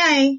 anya